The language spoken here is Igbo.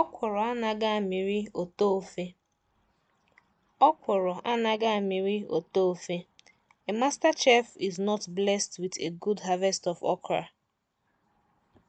Ọkwụrụ anaghị amịrị ụtọ ofe anaghị amịrị A master chef is not blessed with a good harvest of okra.